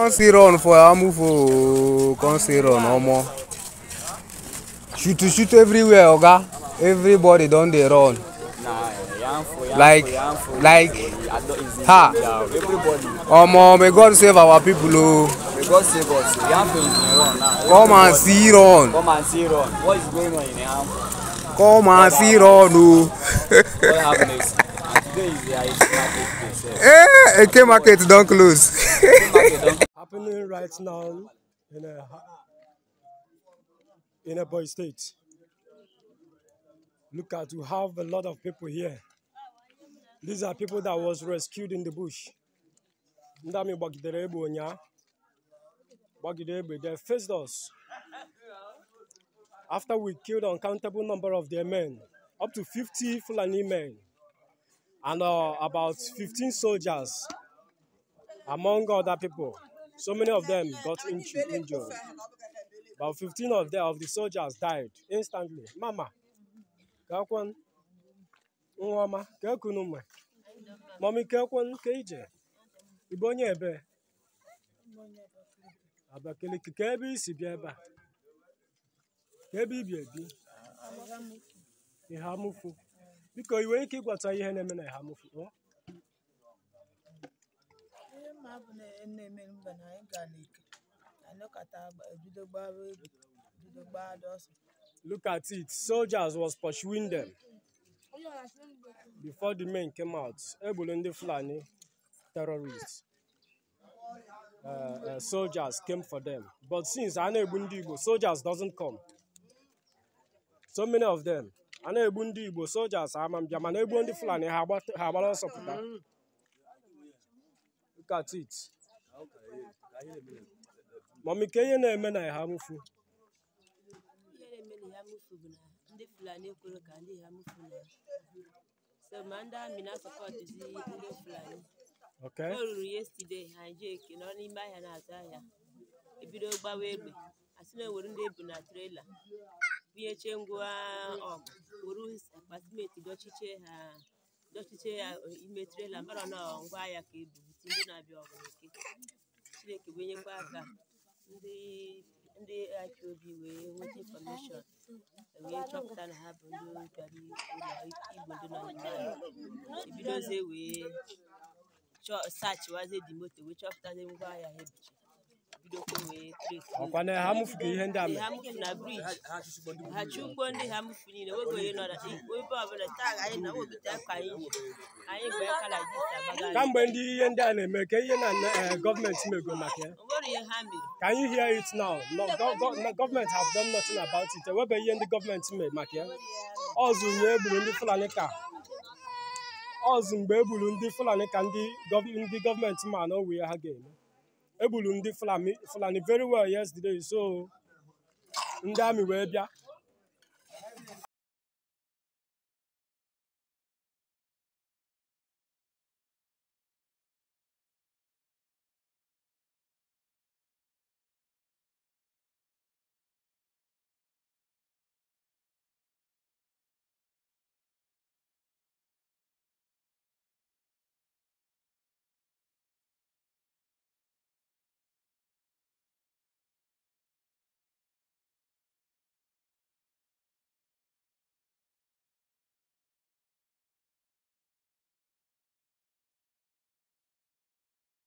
Can't see run for Amufo. Can't see run Omo. Shoot, shoot everywhere, Oga. Everybody don't they run. Like, like, ha. Omo, may God save our people, oh. God save us. Come and see Iran. Come and see Iran. What is going on in Yamfo? Come and see Iran, o. God have market. Eh, Eke market don close. happening right now in a, in a boy state. Look at, you have a lot of people here. These are people that was rescued in the bush. They faced us. After we killed uncountable number of their men, up to 50 Fulani men, and uh, about 15 soldiers, among other people. So many of them got injured. About 15 of them, of the soldiers died instantly. Mama, kakwan, nwama, kakunuma. Mommy, kakwan, keje. Ibonye ebe. Abakeleke, ka ebe isi bịa ebe a. Ka ebe ibi ebi. Ihamufu. Biko, i nwere ike ịgwata ihe na-eme na Ihamufu? hapụ na na mba na anyị ga na anyị nọkọta bido gbara egbe bido gbara Look at it. Soldiers was pursuing them. Before the men came out, Ebolo ndị Fulani terrorists, uh, uh, soldiers came for them. But since Ana-Egbu ndị Igbo, soldiers doesn't come. So many of them. Ana-Egbu ndị Igbo, soldiers ama mbịa, mana Egbu ndị Fulani ha agbara ọsọ pụta. at it mami ka ihe na-eme na ha mụfu ndị fulani ekwere ka ndị ha mụfu na ndị amị na-asọpọtụzi ndị fulani o ruru yesterday ha je eke nọ n'ime ahịa na-azụ ahịa ebido gbawa egbe asị na ewere ndị ebu na trela bunyechie ngwa ọgụ um, were akpa simenti ha dọchiche ya ime trela mara na ngwa ahịa ka ebubite ndị na-abịa ọgụke chineke wenyekwa aka ndị obi wee nweta infọmeshọn wee chọpụta na ha bụ ndị bịara igbo ndị nọ n'ime anyị ebidozie wee sachiwazie dị moto wee chọpụta ndị ngwa ahịa ha ebichi ọkwa ha ihe ndị a ha na ndị ha mụfu niile wego onye nọ ebe ọbụla taa anyị na wogide akwa anyị anyị bụ kamgbe ndị ihe ndị a na-eme ka ihe na eh, gọọmenti mego maka ya Can you hear it now? have done nothing about it. Ewebe ihe ndị gọọmenti maka ya ọzụ nye egburu ndị Fulani ka ndị Fulani ka ndị gọọmenti ma na ha ga-eme egburu ndị fulani very well yesterday so ndị amị wee bịa